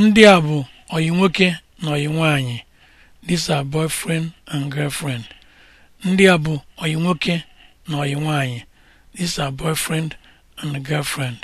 Ndị a bụ oyi nwoke na oyi nwaanyị. These are boyfriend and girlfriend. Ndị a bụ oyi nwoke na oyi nwaanyị. These are boyfriend and girlfriend.